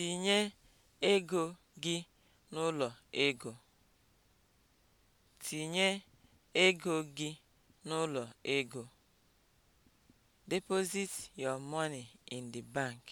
Tinye ego gị n'ụlọ ego. Deposit your money in the bank.